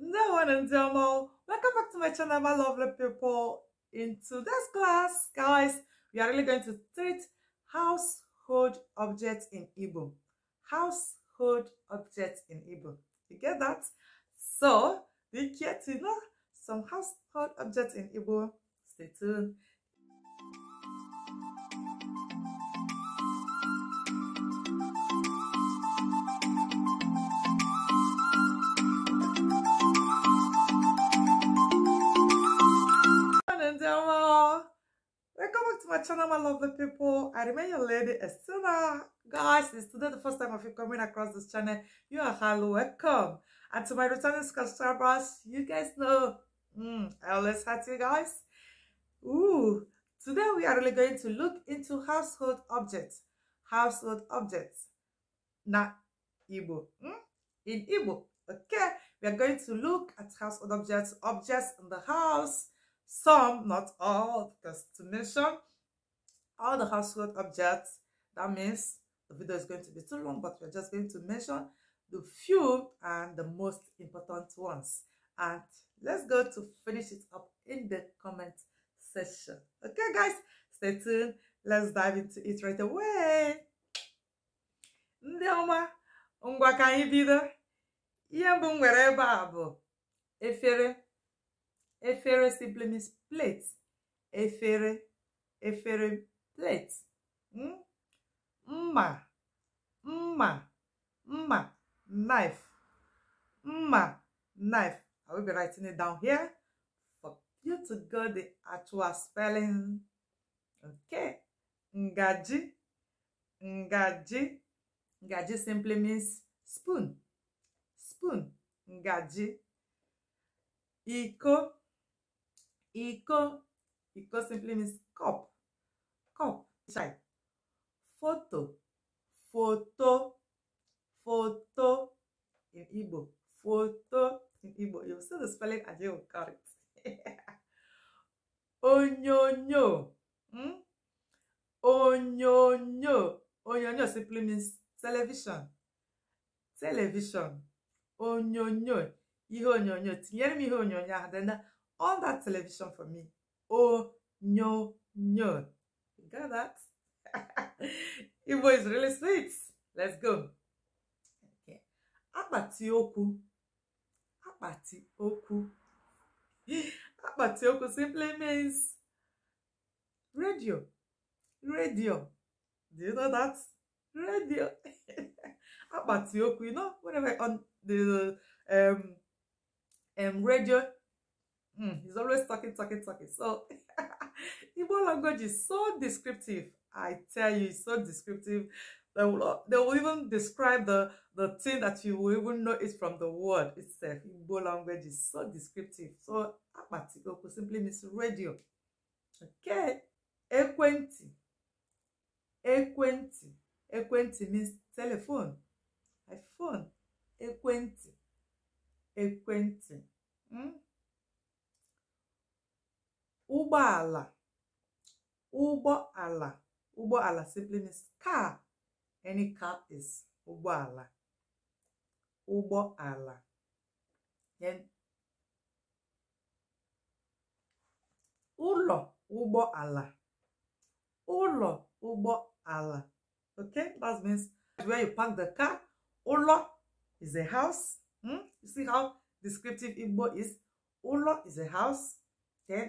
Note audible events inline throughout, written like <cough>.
Hello and Delmo, welcome back to my channel, my lovely people. In today's class, guys, we are really going to treat household objects in Igbo. Household objects in Igbo. You get that? So, do you care to know some household objects in Igbo? Stay tuned. my channel, my lovely people. I remain your lady, Estela. Guys, it's today the first time of you coming across this channel. You are highly welcome. And to my returning subscribers, you guys know mm, I always had you guys. Ooh, today we are really going to look into household objects. Household objects. Na Igbo. Mm? In Igbo. Okay, we are going to look at household objects, objects in the house, some, not all, because to mention all the household objects. That means the video is going to be too long, but we're just going to mention the few and the most important ones. And let's go to finish it up in the comment section. Okay, guys, stay tuned. Let's dive into it right away. Ndị ọma, ngwa ka anyị Ihe mbụ m nwere ebe a bụ efere. Efere simply means plate. Efere, efere plate mma mma mma knife mma knife i will be writing it down here for you to go the actual spelling okay ngaji ngaji ngaji simply means spoon spoon ngaji iko iko iko simply means cup come inside photo photo photo in Igbo photo in Igbo you'll see the spelling and you'll got it <laughs> onyonyo hmm? onyonyo onyonyo simply means television television onyonyo ihe onyonyo tinyere m ihe onyonyo ahụ then all that television for me onyonyo got that? Igbo is really sweet. Let's go. Okay. Akpati okwu. Akpati okwu. Akpati okwu simply means radio. Radio. Do you know that? Radio. Akpati <laughs> okwu. You know, whenever on the um um radio, mm, he's always talking, talking, talking. So <laughs> Igbo language is so descriptive. I tell you, it's so descriptive. They will, they will even describe the, the thing that you will even know it from the word itself. Igbo language is so descriptive. So, Apatigoku simply means radio. Okay. Ekwenti. Ekwenti. Ekwenti means telephone. iPhone. Ekwenti. Ekwenti. Hmm? Ụgbọala. ụgbọ ala ụgbọ ala simply means car any car is ụgbọ ala ụgbọ ala then ụlọ ụgbọ ala ụlọ ụgbọ ala okay that means where you park the car ụlọ is a house hmm? you see how descriptive Igbo is ụlọ is a house then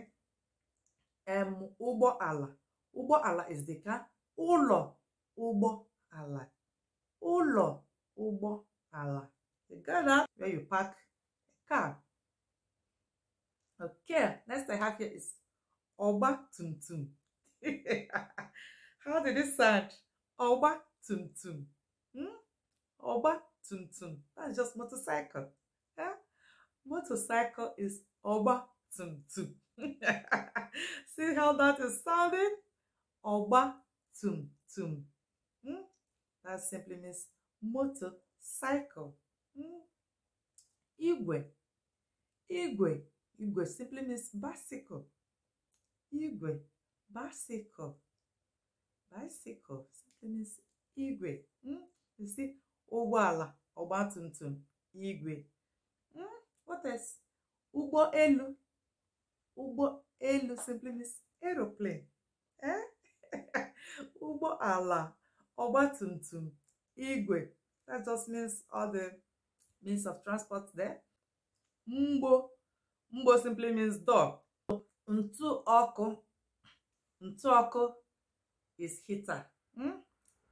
um ụgbọala ụgbọala is the car ụlọ ụgbọ ala ụlọ ụgbọ ala the garage where you park car okay next i have here is ọgba tum tum <laughs> how did it sound ọgba tum tum hmm? ọgba tum tum that's just motorcycle eh? motorcycle is ọgba tum tum <laughs> See how that is sounding? Ọgba tum tum. Mm? That simply means motorcycle. Mm? Igwe. Igwe. Igwe simply means bicycle. Igwe. Bicycle. Bicycle simply means igwe. Mm? You see, ụgbọala, ọgba tum tum, igwe. Mm? What else? Ụgbọ elu. ụgbọ elu simply means aeroplane ee eh? ụgbọ <laughs> ala ọgbatumtum igwe that just means all the means of transport there mgbo mgbo simply means dog ntụ ọkụ ntụ ọkụ is heater hmm?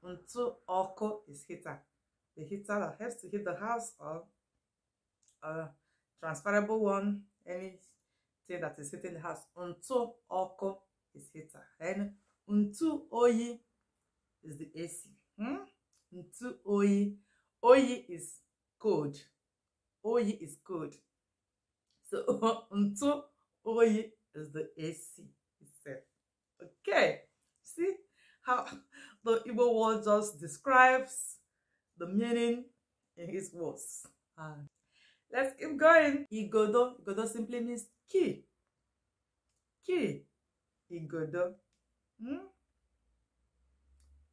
ntụ ọkụ is heater the heater that helps to heat the house or a transferable one any thing that is hitting the house top, ọkụ is heater then ntu oyi is the AC hmm? ntu oyi oyi is cold oyi is cold so <laughs> ntu oyi is the AC itself okay see how <laughs> the Igbo word just describes the meaning in his words. Uh, let's keep going. Igodo. Igodo simply means Qui? Qui? Igodo. Hmm?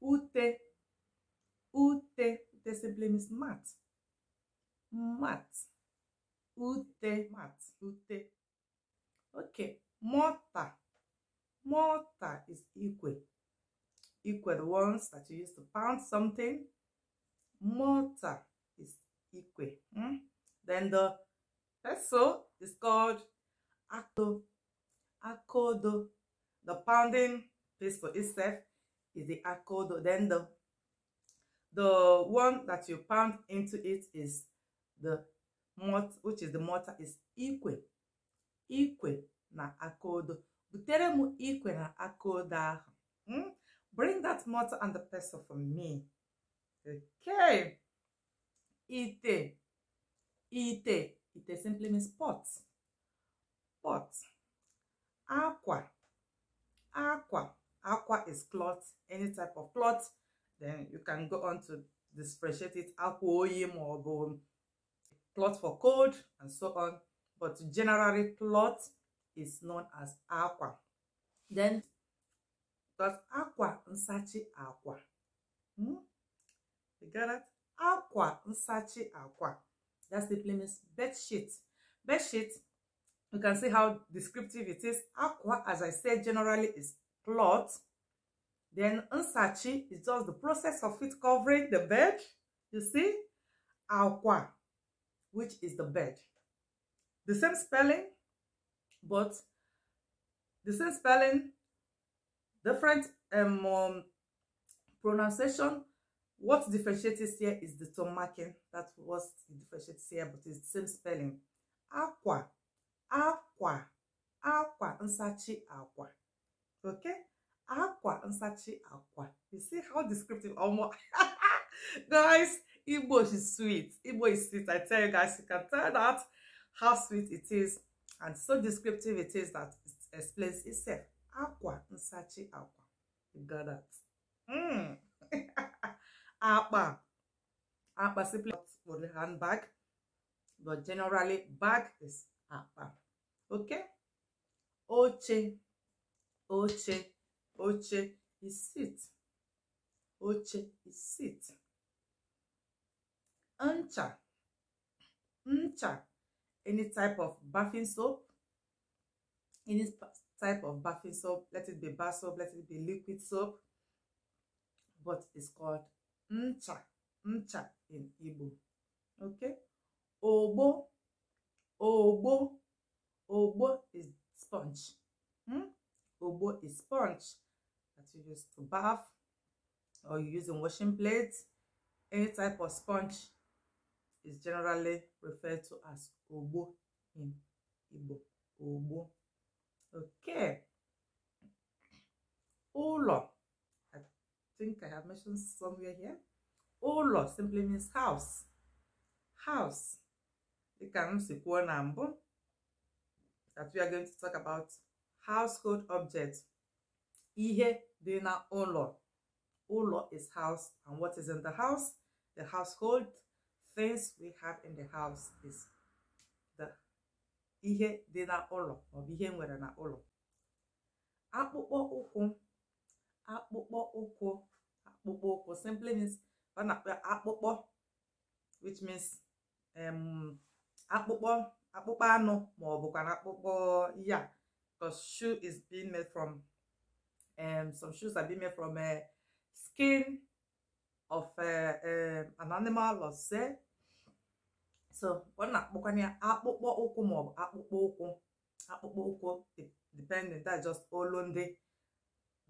Ute. Ute. Ute simply means mat. Mat. Ute. Mat. Ute. Okay. Mortar. Mortar is equal. Equal the ones that you use to pound something. Mortar is equal. Hmm? Then the peso is called Acto, accordo. The pounding pistol itself is the accordo. Then the, the one that you pound into it is the mortar, which is the mortar, is equal. Equal na accordo. Butere mu equal na accordo Hmm? Bring that mortar and the pestle for me. Okay. Ite. Ite. Ite simply means pot pot aqua, aqua, aqua is cloth any type of cloth then you can go on to differentiate it akwa or maọbụ cloth for cold and so on but generally cloth is known as aqua. then because aqua nsachi aqua? hmm? you got it Aqua nsachi aqua. that simply means bed sheet bed sheet You can see how descriptive it is. Aqua, as I said, generally is cloth. Then unsachi is just the process of it covering the bed. You see? Aqua, which is the bed. The same spelling, but the same spelling, different um, um, pronunciation. What differentiates here is the tone marking. That was differentiates here, but it's the same spelling. Aqua akwa akwa nsachi akwa okay akwa nsachi akwa you see how descriptive almost <laughs> guys igbo is sweet igbo is sweet i tell you guys you can tell that how sweet it is and so descriptive it is that it explains itself akwa nsachi akwa you got that mm. <laughs> akpa akpa simply for the handbag but generally bag is akpa oke oche oche oche is sit oche is sit ncha ncha any type of bathing soap any type of bathing soap let it be bar soap let it be liquid soap but it's called ncha ncha in Igbo okay ogbo Ogbo. Ogbo is sponge. Hmm? Ogbo is sponge that you use to bath or you use in washing plates. Any type of sponge is generally referred to as Ogbo in Igbo. Ogbo. Okay. Ụlọ. I think I have mentioned somewhere here. Ụlọ simply means house. House. Ka m kwuo na mbụ that we are going to talk about household objects ihe dị na ụlọ ụlọ is house and what is in the house the household things we have in the house is the ihe dị na ụlọ maọbụ ihe nwere na ụlọ akpụkpọ ụkwụ akpụkpọ ụkwụ akpụkpọ ụkwụ simply means ọ na-akpọ akpụkpọ which means um, akpụkpọ akpụkpọ anụ ma ọ bụkwa akpụkpọ ya because shoe is being made from um, some shoes are being made from uh, skin of uh, um, an animal or say so ọ na ya akpụkpọ ụkwụ ma ọ bụ akpụkpọ ụkwụ akpụkpọ ụkwụ depending that just olu ndị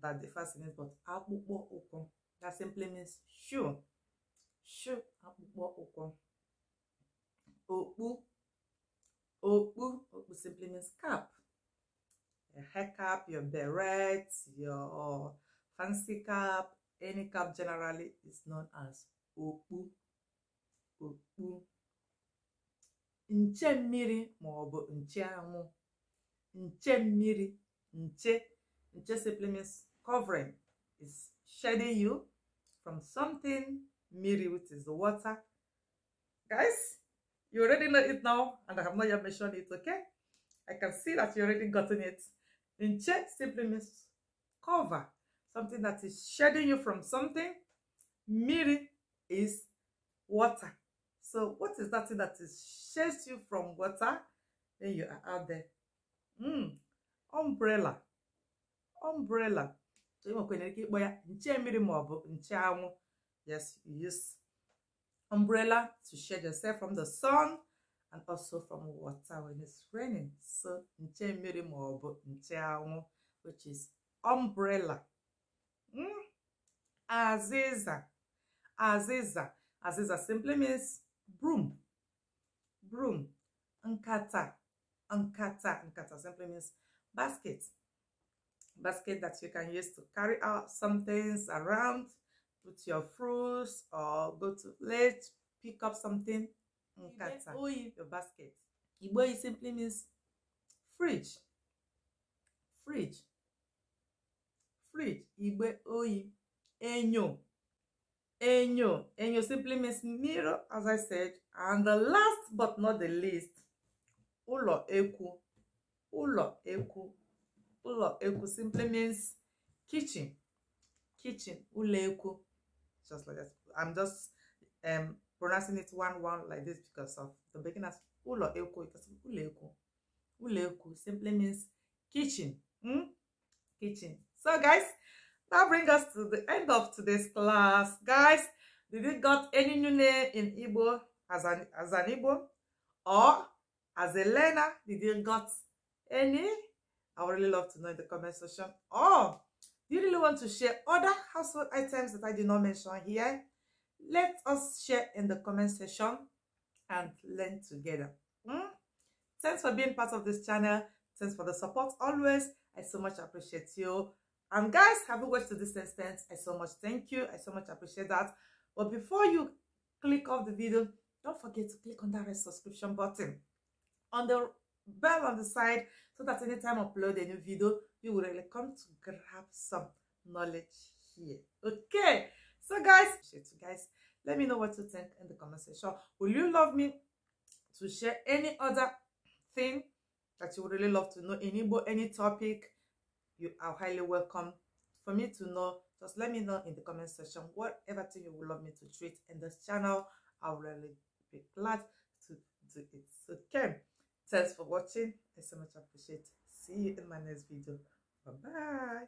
that the fascinate but akpụkpọ ụkwụ that simply means shoe shoe akpụkpọ ụkwụ okpu okpu okpu simply means cap a hair cap your beret your fancy cap any cap generally is known as okpu okpu nche mmiri ma ọ bụ nche anwụ nche mmiri nche nche simply means covering is shading you from something mmiri which is the water guys You already know it now, and I have not yet mentioned it, okay? I can see that you already gotten it. Inche simply means cover, something that is shading you from something. Miri is water. So what is that thing that is shades you from water? Then you are out there. Mm, umbrella. Umbrella. So Yes, you use umbrella to shield yourself from the sun and also from water when it's raining. So, nche mmiri maọbụ nche anwụ, which is umbrella. Mm? Aziza. Aziza. Aziza simply means broom. Broom. Nkata. Nkata. Nkata simply means basket. Basket that you can use to carry out some things around. Put your fruits or go to let's pick up something nkata mm, your basket igboyi simply means fridge fridge fridge igbe oyi enyo enyo enyo simply means mirror as i said and the last but not the least ụlọ ekwu ụlọ ekwu ụlọ ekwu simply means kitchen kitchen ụlọ ekwu just like that. I'm just um, pronouncing it one one like this because of the beginners. Ulo eko, because ulo eko. Ulo eko simply means kitchen. Hmm? Kitchen. So guys, that brings us to the end of today's class. Guys, did you got any new name in Igbo as an as an Igbo? Or as a learner, did you got any? I would really love to know in the comment section. Oh you really want to share other household items that I did not mention here, let us share in the comment section and learn together. Mm? Thanks for being part of this channel. Thanks for the support always. I so much appreciate you. And guys, have you watched to this extent? I so much thank you. I so much appreciate that. But before you click off the video, don't forget to click on that red subscription button on the bell on the side so that anytime I upload a new video, you will really come to grab some knowledge here okay so guys guys let me know what you think in the comment section will you love me to share any other thing that you would really love to know Any any topic you are highly welcome for me to know just let me know in the comment section whatever thing you would love me to treat in this channel i'll really be glad to do it okay thanks for watching i so much appreciate see you in my next video Bye-bye.